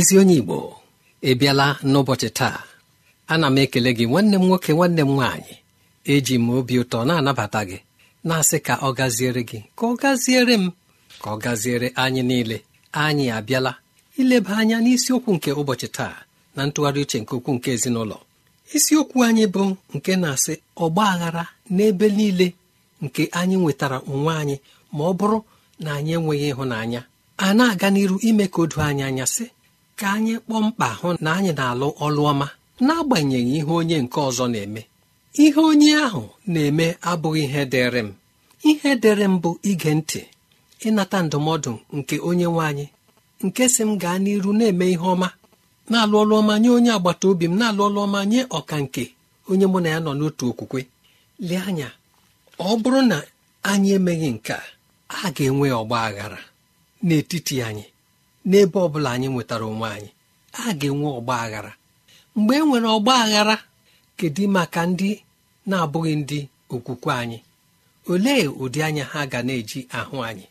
ezi onye igbo ị n'ụbọchị taa ana m ekele gị nwanne m nwoke nwanne m nwaanyị eji m obi ụtọ na-anabata gị na-asị ka ọ gaziere gị ka ọ gaziere m ka ọ gaziere anyị niile anyị abịala ileba anya n'isiokwu nke ụbọchị taa na ntụgharị uche nke okwu nke ezinụlọ isiokwu anyị bụ nke na-asị ọgba aghara n'ebe niile nke anyị nwetara onwe anyị ma ọ bụrụ na anyị enweghị ịhụnanya a na-aga n'iru ime ka o du anyị anya sị ka anyị kpọọ mkpa hụ na anyị na-alụ ọlụ ọma n'agbanyeghị ihe onye nke ọzọ na-eme ihe onye ahụ na-eme abụghị ihe dịrị m ihe dịrị m bụ ige ntị ịnata ndụmọdụ nke onye nwe anyị nke si m gaa n'iru na-eme ihe ọma na-alụ ọlụ ọma nye onye agbata obi m na-alụ ọlụ ọma nye ọka nke onye mụ na ya nọ n'otu okwukwe lee anya ọ bụrụ na anyị emeghị nke a ga-enwe ọgba aghara n'etiti anyị n'ebe ọ bụla anyị nwetara onwe anyị a ga-enwe ọgba aghara mgbe e nwere ọgba aghara kedu maka ndị na-abụghị ndị okwukwe anyị olee ụdị anya ha ga na-eji ahụ anyị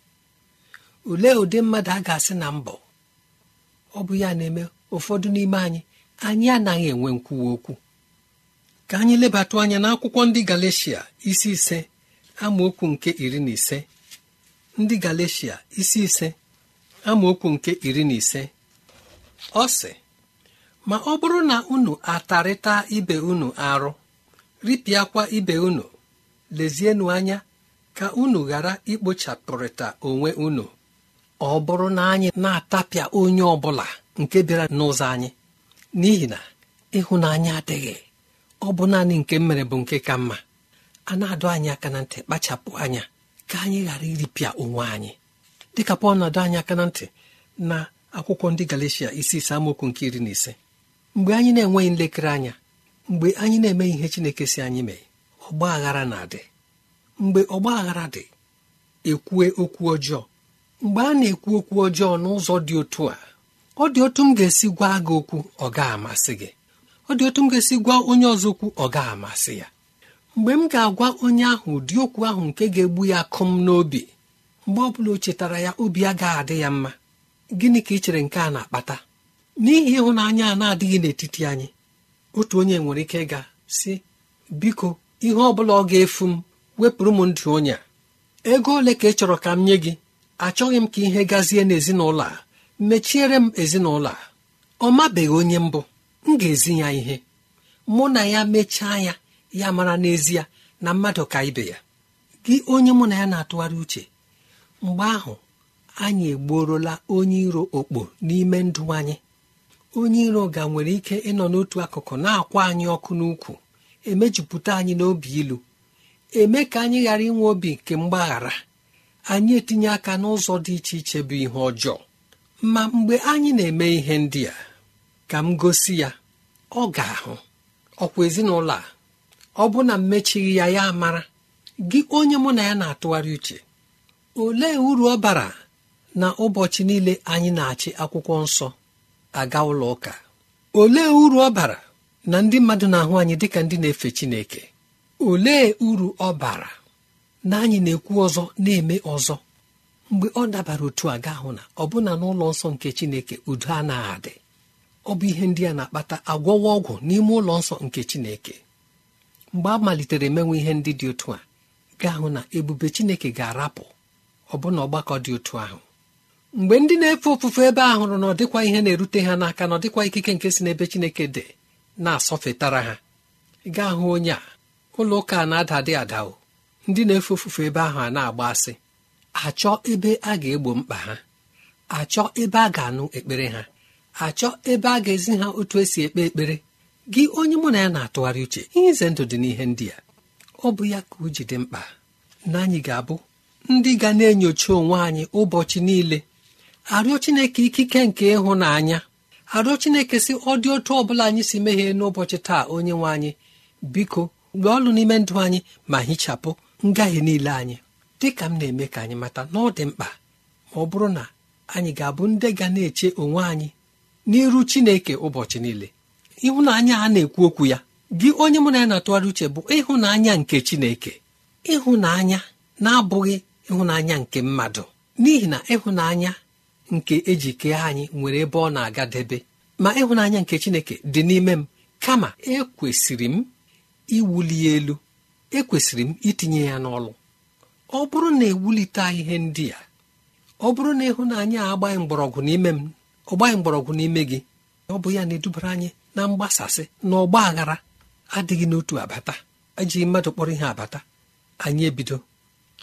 olee ụdị mmadụ a ga-asị na mbọ ọ bụ ya na-eme ụfọdụ n'ime anyị anyị anaghị enwe nkwuwa okwu ka anyị lebatụ anya n'akwụkwọ ndị Galeshia isi ise amaokwu nke iri na ise ndị galecia isi ise amaokwu nke iri na ise ọ sị ma ọ bụrụ na unu atarịta ibe unu arụ ripịakwa ibe unu lezienụ anya ka unu ghara ikpochapụrịta onwe unu ọ bụrụ na anyị na-atapịa onye ọ bụla nke bịara n'ụzọ anyị n'ihi na ịhụnanya adịghị ọ bụ naanị nke mere bụ nke ka mma a na-adụ anyị aka na ntị kpachapụ anya ka anyị ghara iripịa onwe anyị dịka pọl na-adọ anyị aka na ntị na akwụkwọ ndị galicia isi ise nke iri na ise mgbe anyị na-enweghị nlekere anya mgbe anyị na-emeghị ihe chineke si anyị mee ọgba aghara na-adị mgbe ọgba aghara dị ekwue okwu ọjọọ mgbe a na-ekwu okwu ọjọọ n'ụzọ dị otu a ọ dị otu m ga-esi gwa gị okwu ọ ga-amasị gị ọ dị otu m ga-esi gwa onye ọzọ okwu ọ ga-amasị ya mgbe m ga-agwa onye ahụ ụdị okwu ahụ nke ga-egbu ya akụm n'obi mgbe ọ bụla o chetara ya obi a gaghị adị ya mma gịnị ka ị chere nke a na-akpata n'ihi ịhụnanya a na-adịghị n'etiti anyị otu onye nwere ike ịga si biko ihe ọ bụla ọ ga-efu m wepụrụ m ndụ onye a ego ole ka ị chọrọ ka m nye gị achọghị m ka ihe gazie n'ezinụlọ a mechiere m ezinụlọ a ọ mabeghị onye mbụ m ga-ezi ya ihe mụ na ya mechaa ya ya mara n'ezie na mmadụ ka ibe ya gị onye mụ na ya na-atụgharị uche mgbe ahụ anyị egbuorola onye iro okpo n'ime ndụ anyị onye iro ga nwere ike ịnọ n'otu akụkụ na-akwa anyị ọkụ n'ukwu emejupụta anyị n'obi ilu eme ka anyị ghara inwe obi nke mgbaghara anyị etinye aka n'ụzọ dị iche iche bụ ihe ọjọọ ma mgbe anyị na-eme ihe ndị a ka m gosi ya ọ ga-ahụ ọkwa ezinụlọ a ọ bụ na mmechighị ya ya mara gị onye mụ na ya na-atụgharị uche olee uru ọ bara na ụbọchị niile anyị na-achị akwụkwọ nsọ aga ụlọ ụka olee uru ọ bara na ndị mmadụ na-ahụ anyị dịka ndị na-efe Chineke olee uru ọ bara na anyị na-ekwu ọzọ na-eme ọzọ mgbe ọ dabara otu a ga ahụ na ọbụna n'ụlọ nsọ nke Chineke udo anaghị adị ọ bụ ihe ndị a na-akpata agwọwa ọgwụ n'ime ụlọ nsọ nke Chineke mgbe a malitere emenwe ihe ndị dị otu a ga ahụ na ebube Chineke ga-arapụ ọbụna ọgbakọ dị otu ahụ mgbe ndị na-efe ofufe ebe ahụ hụrụ na ọ dịkwa ihe na-erute ha n'aka na ọ dịkwa ikike nke si n'ebe Chineke dị na-asọfetara ha gaa hụ onye a ụlọ ụka na-ada adị adao ndị na-efe ofufe ebe ahụ a na-agba asị achọ ebe a ga-egbo mkpa ha achọ ebe a ga-anụ ekpere ha achọ ebe a ga-ezi ha otu esi ekpe ekpere gị onye mụ na ya na-atụgharị uche ihe ize ndụ dị n'ihe ndị a ọ bụ ya ka o ji dị mkpa na anyị ga-abụ ndị ga na-enyocha onwe anyị ụbọchị niile arịọ chineke ikike nke ịhụnanya arịọ chineke si ọ dị otu ọbụla anyị si mehie n'ụbọchị taa onye nwe anyị biko mgbe ọlụ n'ime ndụ anyị ma hichapụ ngahie niile anyị dị ka m na-eme ka anyị mata na ọ dị mkpa ma ọ bụrụ na anyị ga-abụ ndị ga na-eche onwe anyị n'iru chineke ụbọchị niile ịhụnanya a na-ekwu okwu ya gị onye mụ na ya na-atụgharị uche bụ ịhụnanya nke chineke ịhụnanya na-abụghị ịhụnanya nke mmadụ n'ihi na ịhụnanya nke eji kee anyị nwere ebe ọ na-agadebe ma ịhụnanya nke chineke dị n'ime m kama ekwesịrị m iwuli elu ekwesịrị m itinye ya n'ọlụ ọ bụrụ na ewulite ihe ndị a ọ bụrụ na ịhụnanya agbaghị mgbọrọgwụ n'ime m ọgbaghị mgbọrọgwụ n'ime gị ọ bụ ya na-edubara anyị na mgbasasị na ọgba aghara adịghị n'otu abata ejighị mmadụ kpọrọ ihe abata anyị ebido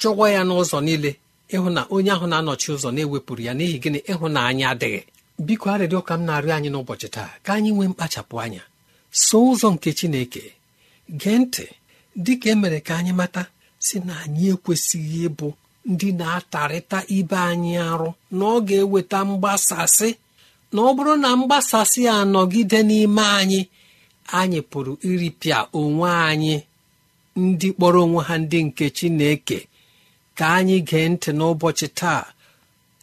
chụwa ya n'ụzọ niile ịhụ na onye ahụ na-anọchi ụzọ na-ewepụrụ ya n'ihi gịnị ịhụnanya adịghị biko arịrịọ ka m na-arịọ anyị n'ụbọchị taa ka anyị nwee mkpachapụ anya so ụzọ nke Chineke gee ntị dịka e emere ka anyị mata si na anyị ekwesịghị ịbụ ndị na-atarịta ibe anyị arụ na ọ ga-eweta mgbasasị na ọ bụrụ na mgbasasị a nọgide n'ime anyị anyị pụrụ iripịa onwe anyị ndị kpọrọ onwe ha ndị nke Chineke ka anyị gee ntị n'ụbọchị taa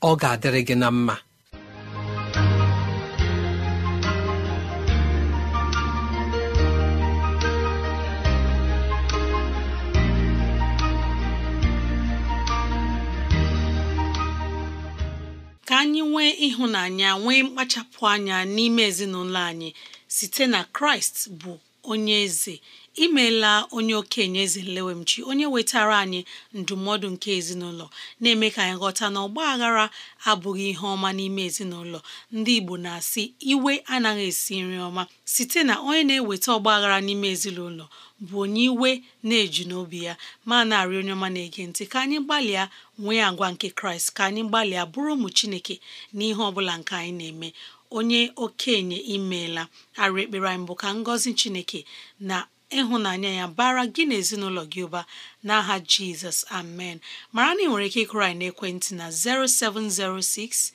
ọ ga-adịrị gị na mma ka anyị nwee ịhụnanya nwee mkpachapụ anya n'ime ezinụlọ anyị site na kraịst bụ onye eze imeela onye okenye eze nlewemchi onye wetara anyị ndụmọdụ nke ezinụlọ na-eme ka anyị ghọta na ọgba aghara abụghị ihe ọma n'ime ezinụlọ ndị Igbo na-asị iwe anaghị esi nri ọma site na onye na-eweta ọgba aghara n'ime ezinụlọ bụ onye iwe na-eju n'obi ya ma na-arị onye ọma na-ege ntị ka anyị gbalịa nwee agwa nke Kraịst ka anyị gbalịa bụrụ ụmụ Chineke na ihe ọbụla nke anyị na-eme onye okenye imeela arụ ekpere anyị bụ ka ngọzi Chineke na ịhụnanya ya bara gị na ezinụlọ gị ụba n'aha jizọs amen mara na ị nwere ike ịkụrụ anyị n'ekwentị na 0706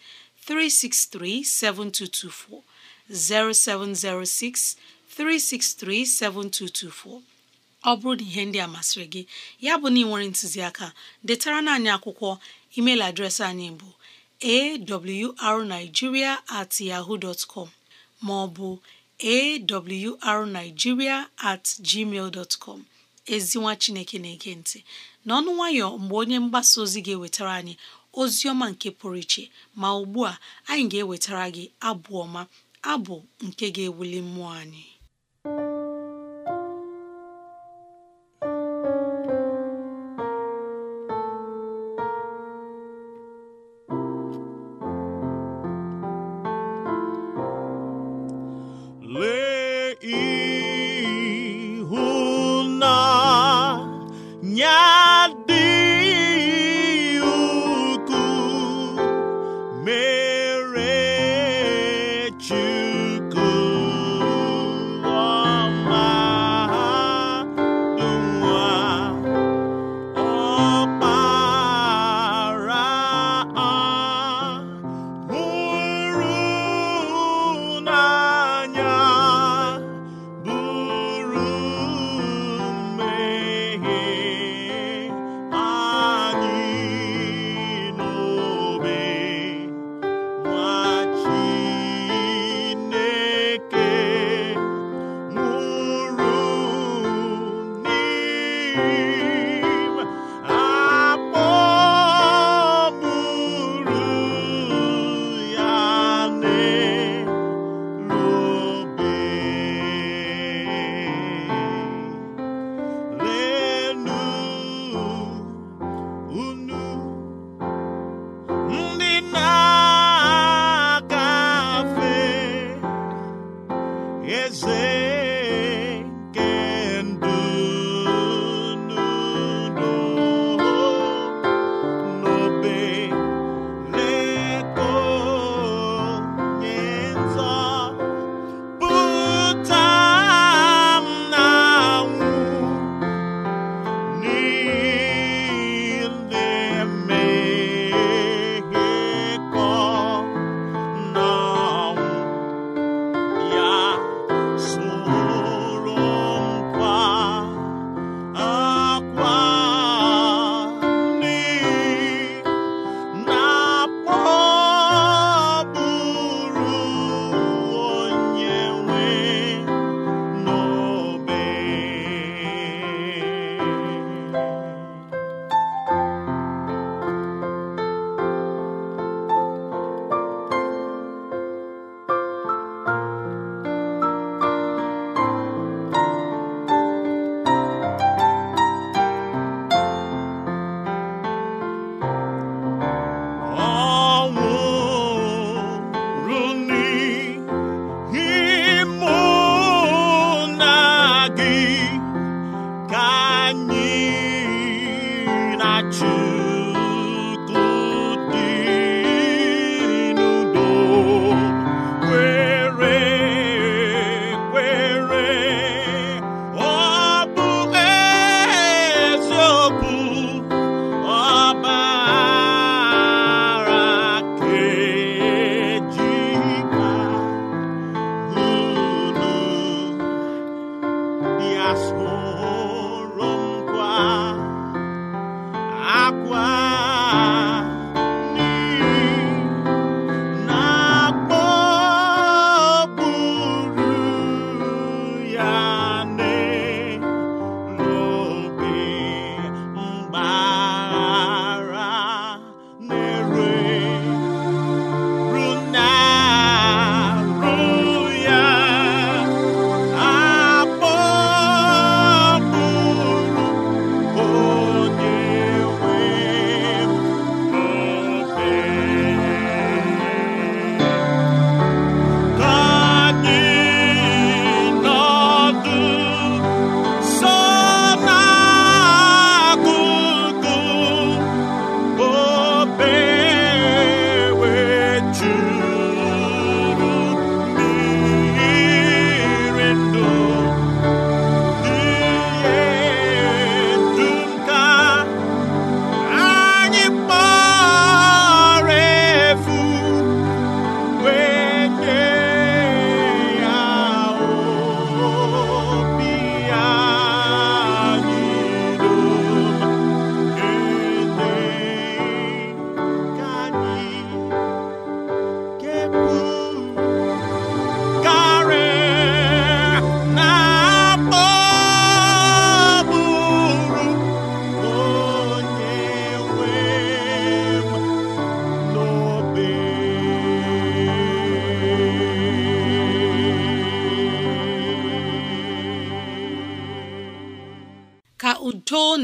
363 7224 0706 363 7224 ọ bụrụ na ihe ndị a masịrị gị ya bụ na ị nwere ntụziaka detara na anyị akwụkwọ email adreesị anyị bụ awrnigeria at ma ọ bụ awrnigeria at gmail dot com ezinwa chineke na-ege ntị n'ọnụ nwayọ mgbe onye mgbasa ozi ga-ewetara anyị ozi ọma nke pụrụ iche ma ugbu a anyị ga-ewetara gị abụ ọma abụ nke ga-ewuli mmụọ anyị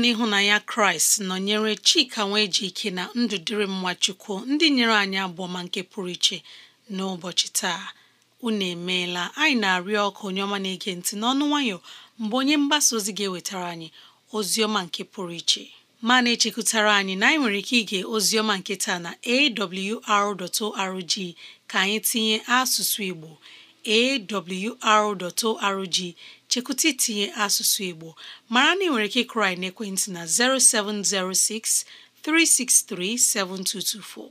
n'ịhụnanya kraịst nọnyere chika nwee ji ike na ndụ dịrị mma chukwu ndị nyere anyị abụọma nke pụrụ iche n'ụbọchị taa unu emeela anyị na-arịọ ọkụ onye ọma na-ege ntị n'ọnụ nwayọ mgbe onye mgbasa ozi ga-ewetara anyị ozi ọma nke pụrụ iche ma na-echekwutara anyị na anyị nwere ike ige ozi ọma nke taa na awr.org ka anyị tinye asụsụ igbo awr.org chekwụta itinye asụsụ Igbo mara na ị nwere ike ịkụrị na ekwentị na 0706 363 7224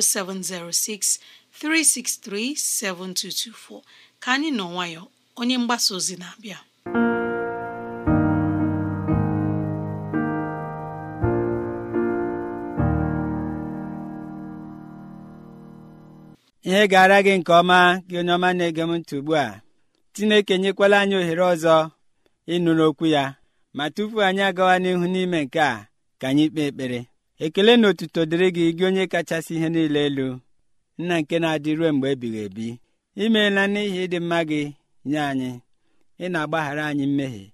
0706 363 7224 ka anyị nọ nwayọ onye mgbasa ozi na-abịa ihe gara gị nke ọma gị n'ọma ọma na-ege m ugbu a chineke nyekwala anyị ohere ọzọ ịnụrụ okwu ya ma tupu anyị agawa n'ihu n'ime nke a ka anyị kpee ekpere ekele na otuto dịrị gị gị onye kachasị ihe niile elu nna nke na-adị ruo mgbe ebighị ebi imeela n'ihi ịdị mma gị nye anyị ị na-agbaghara anyị mmehie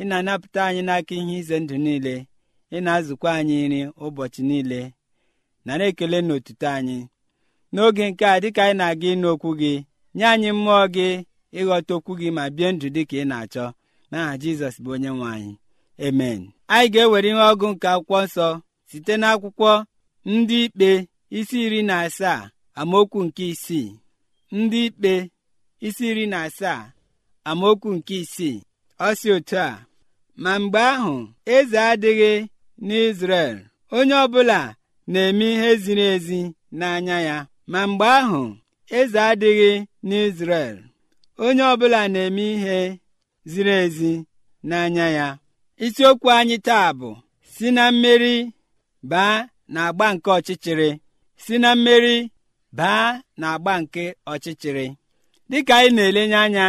ị na-anapụta anyị n'aka ihe ize ndụ niile ị na-azụkwa anyị nri ụbọchị niile nara ekele na otuto anyị n'oge nke a dịka anyị na-aga ịnụ okwu gị nye anyị mmụọ gị ịghọta okwu gị ma bie ndụ dị ka ị na-achọ n'aha jizọs bụ onye nwe anyị emen anyị ga-ewere ihe ọgụ nke akwụkwọ nsọ site n'akwụkwọ ndị ikpe isi iri na asaa amaokwu nke isii ndị ikpe isi iri na asaa amaokwu nke isii ọ si otu a ma mgbe ahụ eze adịghị n'izrel onye ọbụla na-eme ihe ziri ezi n'anya ya ma mgbe ahụ eze adịghị n'izrel onye ọbụla na-eme ihe ziri ezi n'anya ya isiokwu anyị taa bụ si na mmeri baa na agba nke ọchịchịrị si na mmeri baa na agba nke ọchịchịrị dịka anyị na-elenye anya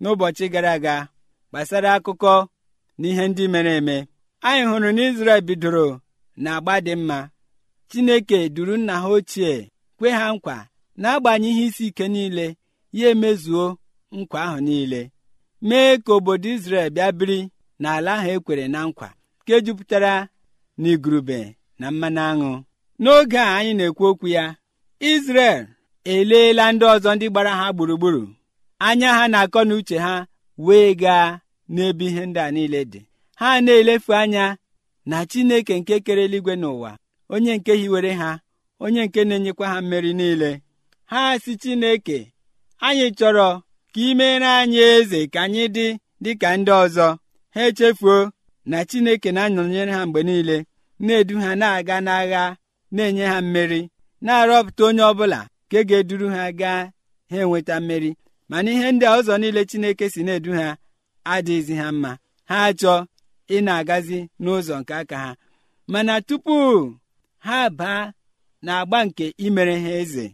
n'ụbọchị gara aga gbasara akụkọ na ihe ndị mere eme anyị hụrụ na Izrel bidoro na agba dị mma Chineke duru nna ha ochie kwe ha nkwa n'agbanyeghị isi ike niile ya emezuo nkwa ahụ niile mee ka obodo Izrel bịa biri n'ala ahụ ekwere na nkwa nke jupụtara igurube na mmanụ aṅụ n'oge a anyị na-ekwu okwu ya Izrel eleela ndị ọzọ ndị gbara ha gburugburu anya ha na-akọ na uche ha wee gaa n'ebe ihe ndị a niile dị ha na-elefu anya na Chineke nke kere eluigwe n'ụwa onye nke hiwere ha onye nke na-enyekwa ha mmeri niile ha si Chineke anyị chọrọ ka imere anyị eze ka anyị dị dịka ndị ọzọ ha echefuo na chineke na-anọnyere ha mgbe niile na-edu ha na-aga n'agha na-enye ha mmeri na-arọpụta onye ọbụla ka ga-eduru ha gaa ha enweta mmeri mana ihe ndị ọzọ niile chineke si na-edu ha adịghịzi ha mma ha achọ ị na-agazi n'ụzọ nke aka ha mana tupu ha baa na agba nke imere ha eze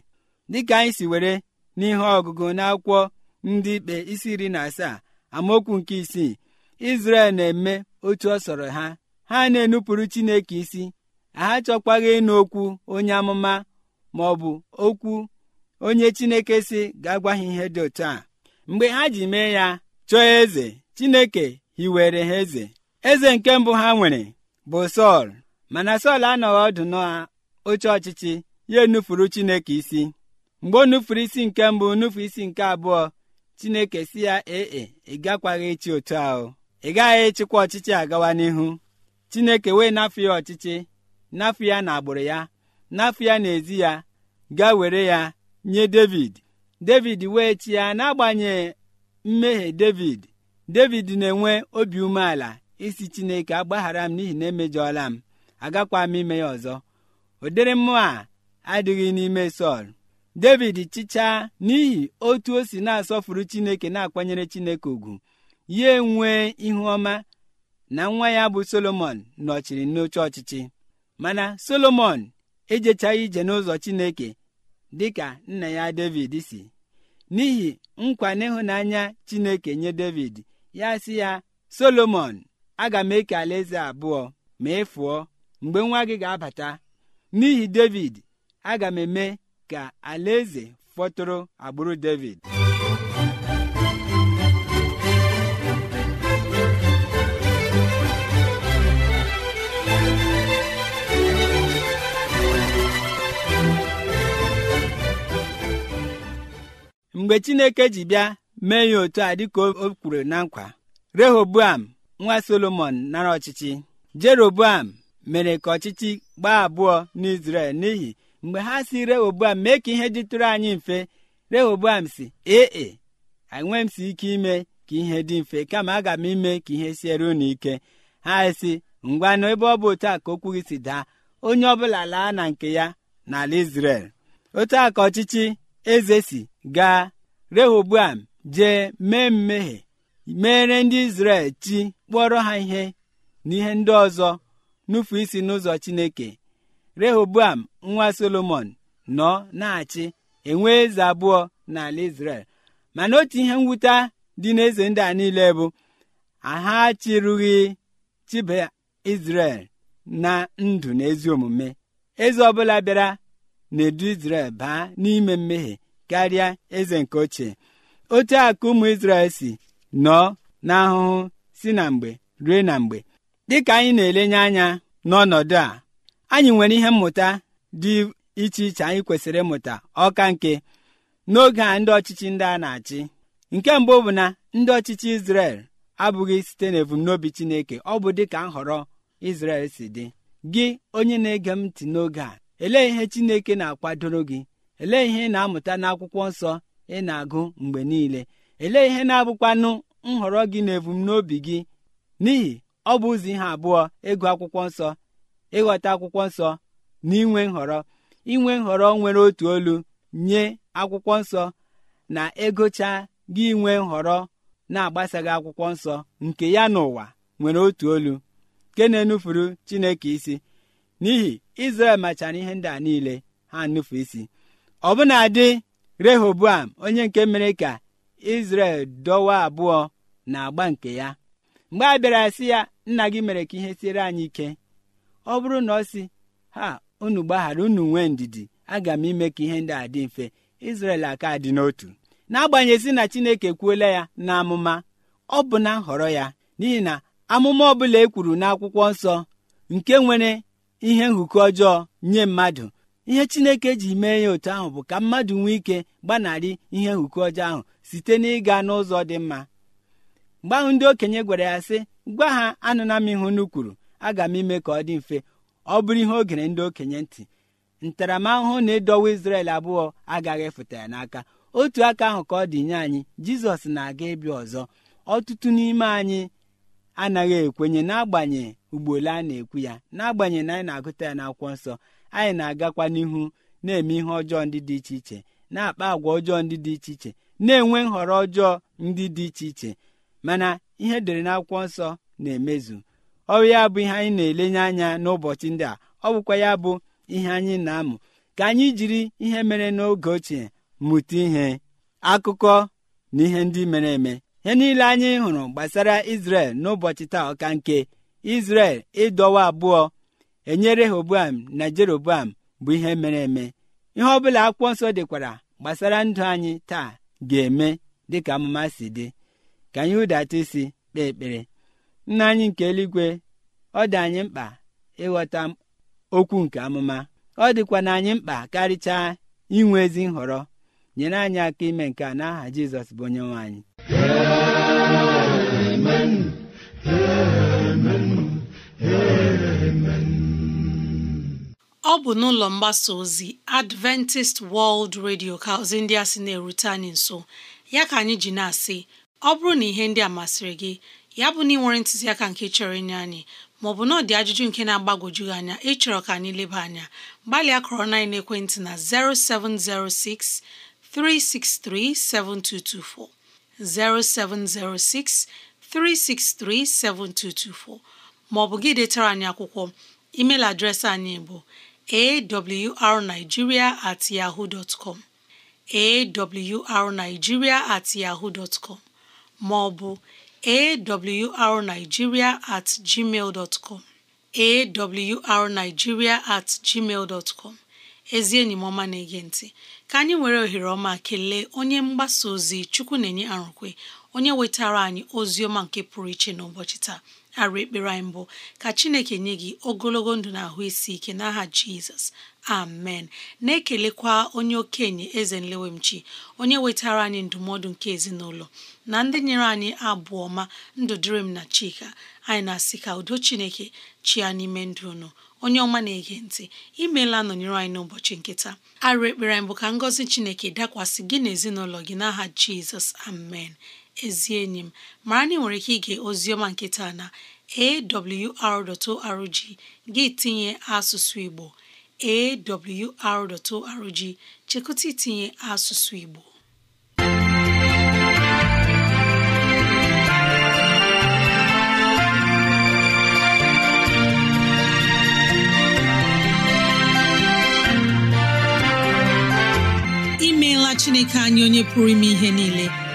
dịka anyị si were n'ihe ọgụgụ n'akwụkwọ ndị ikpe isi iri na asaa amaokwu nke isii izrel na-eme otu ọ sọrọ ha ha na-enupụrụ chineke isi ha chọkwaghị ịnụ okwu onye amụma ma ọ bụ okwu onye chineke si ga-agwa ha ihe dị otu a mgbe ha ji mee ya chọọ eze chineke hiwere ha eze eze nke mbụ ha nwere bụ sọl mana sọl anọghị ọdụ oche ọchịchị ya enufuru chineke isi mgbe o nufuru isi nke mbụ nufu isi nke abụọ chineke si ya ee ị gakwaghị echi otu ahụ ị gaghị echikwa ọchịchị agawa n'ihu chineke wee n'afọ ya ọchịchị n'afọ ya na agbụrụ ya n'afọ ya ezi ya ga were ya nye david david wee chi ya n'agbanyeghị mmehie david david na-enwe obi umeala isi chineke agbaghara m n'ihi na emejọọla m agakwa m ime ya ọzọ ụdịrị mmụọ a adịghị n'ime sọl david chichaa n'ihi otu o si na-asọfuru chineke na-akwanyere chineke ugwu ya enwee ihu ọma na nwa ya bụ solomon nọchiri n'oche ọchịchị mana solomon ejechaghị ije n'ụzọ chineke dị ka nna ya david si n'ihi nkwa n'ịhụnanya chineke nye david ya si ya solomon aga m eke alaeze abụọ ma ị mgbe nwa gị ga-abata n'ihi david aga m eme ka alaeze fọtụrụ agbụrụ david mgbe chineke ji bịa mee ya otu a dịka o kwuru na nkwa rehoboam nwa solomon nara ọchịchị jeroboam mere ka ọchịchị gbaa abụọ n'izrel n'ihi mgbe ha si rehoboam mee ka ihe dịtụrụ anyị mfe rehoboam si ee enwe m si ike ime ka ihe dị mfe kama aga m ime ka ihe siere unu ike ha si ngwa na ebe ọ bụ otu a ka okwu gị si daa onye ọbụla laa na nke ya n'ala isrel otu a ka ọchịchị eze si gaa rehoboam jee mee mmehie meere ndị Izrel chi kpọrọ ha ihe ihe ndị ọzọ nufu isi n'ụzọ Chineke rehoboam nwa solomon nọ na-achị enwe eze abụọ n'ala israel mana otu ihe mwute dị n'eze ndị a niile bụ aha chịrụghị chibe israel na ndụ na ezi omume eze ọbụla bịara na-edu baa n'ime mmehie karịa eze nke ochie otu akụ ụmụ israel si nọọ n'ahụhụ si na mgbe rue na mgbe dịka anyị na-elenye anya n'ọnọdụ a anyị nwere ihe mmụta dị iche iche anyị kwesịrị ịmụta ọka nke n'oge a ndị ọchịchị ndị a na-achị nke mbụ bụ na ndị ọchịchị Izrel abụghị site n'ebumnobi Chineke ọ bụ dịka nhọrọ Izrel si dị gị onye na-ege m ntị n'oge a elee ihe Chineke na-akwadoro gị elee ihe ị na-amụta n'akwụkwọ nsọ ị na-agụ mgbe niile elee ihe na-abụkwanụ nhọrọ gị na ebumnobi gị n'ihi ọ bụ ụzọ ihe abụọ ịgụ akwụkwọ nsọ ịghọta akwụkwọ nsọ na inwe nhọrọ inwe nhọrọ nwere otu olu nye akwụkwọ nsọ na egocha gị inwe nhọrọ na-agbasaghị akwụkwọ nsọ nke ya n'ụwa nwere otu olu nke na-enufuru chineke isi n'ihi izrel machara ihe ndị a niile ha nnufu isi ọ bụna dị rehoboam onye nke mere ka izrel dọwa abụọ na agba nke ya mgbe a bịara si ya nna gị mere ka ihe siere anyị ike ọ bụrụ na ọ si ha unu gbaghara unu nwee ndidi aga m ime ka ihe ndị a dị mfe Izrel aka dị n'otu n'agbanyeghị na Chineke kwuola ya na amụma ọ bụ na nhọrọ ya n'ihi na amụma ọbụla e kwuru n'akwụkwọ nsọ nke nwere ihe nhụkọ ọjọọ nye mmadụ ihe Chineke ji mee ya otu ahụ bụ ka mmadụ nwee ike gbanarị ihe nhụkọ ọjọọ ahụ site n'ịga n'ụzọ dị mma mgbe ahụ ndị okenye gwara ya sị gwa ha anụna m ihu nu kwuru aga m ime ka ọ dị mfe ọ bụrụ ihe o gere ndị okenye ntị ntaramahụhụ na-edowe isrel abụọ agaghị efụta ya n'aka otu aka ahụ ka ọ dị nye anyị Jizọs na-aga ịbịa ọzọ ọtụtụ n'ime anyị anaghị ekwenye n'agbanye ugboole a na-ekwu ya n'agbanye na anyị na-agụta ya n'akwụkwọ nsọ anyị na-agakwa n'ihu na-eme ihe ọjọọ ndị dị iche iche na-akpa àgwà ọjọọ ndị dị iche iche na-enwe nhọrọ ọjọọ ndị dị iche iche mana ihe edere n'akwụkwọ nsọ na-emezu ọ bụ ya bụ ihe anyị na-elenye anya n'ụbọchị ndị a ọ bụkwa ya bụ ihe anyị na-amụ ka anyị jiri ihe mere n'oge ochie mụta ihe akụkọ na ihe ndị mere eme ihe niile anyị hụrụ gbasara Izrel n'ụbọchị taa ọka nke Izrel ịdọwa abụọ enyere Rehoboam na Jeroboam bụ ihe mere eme ihe ọ bụla akwụkwọ nsọ dịkwara gbasara ndụ anyị taa ga-eme dịka amụma si dị ka anyị hụdata isi kpee ekpere nna anyị nke eluigwe ọ dị anyị mkpa ịghọta okwu nke amụma ọ dịkwa na anyị mkpa karịchaa inwe ezi nhọrọ nyere anyị aka ime nke a n'aha Jizọs bụ onye nwe ọ bụ n'ụlọ mgbasa ozi Adventist World Radio ka ozi ndị a na-erute anyị nso ya ka anyị ji na-asị ọ bụrụ na ihe ndị a masịrị gị ya bụ na ị ntụziaka nke chọrọ inye anyị maọbụ na ọ dị ajụjụ nke na-agbagwoju gị anya ịchọrọ ka anyị leba anya gbalịa kọrọ na ekwentị na 0706 363 7224 0706 363 7224 maọbụ gị detara anyị akwụkwọ email adreesị anyị bụ awrnigeria at yahoo dot com at maọbụ awrnigeria at gmail dot com awrnigeria at gmail com ezi enyi m ọma na-ege ntị ka anyị nwere ohere ọma kelee onye mgbasa ozi chukwu na-enye arụkwe onye wetara anyị ozi ọma nke pụrụ iche na n'ụbọchị taa arụ ekpere anyị mbụ ka chineke nye gị ogologo ndụ na ahụ isi ike n'aha jizọs amen na-ekelekwa onye okenye eze nlewemchi onye wetara anyị ndụmọdụ nke ezinụlọ na ndị nyere anyị abụ ọma ndụ dịrị m na chika anyị na-asị ka udo chineke chịa n'ime ndụ unu onye ọma na-ege ntị imeela nọnyere anyị n'ụbọchị nkịta. taa arụ ekpere anyị bụ ka ngọzi chineke dakwasị gị na ezinụlọ gị n'aha jizọs amen ezi enyi m mara na ị nwere ike ige oziọma nkịta na awr.org gị tinye asụsụ Igbo awr.org chekụta itinye asụsụ Igbo imeela Chineke anyị onye pụrụ ime ihe niile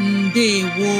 ndewo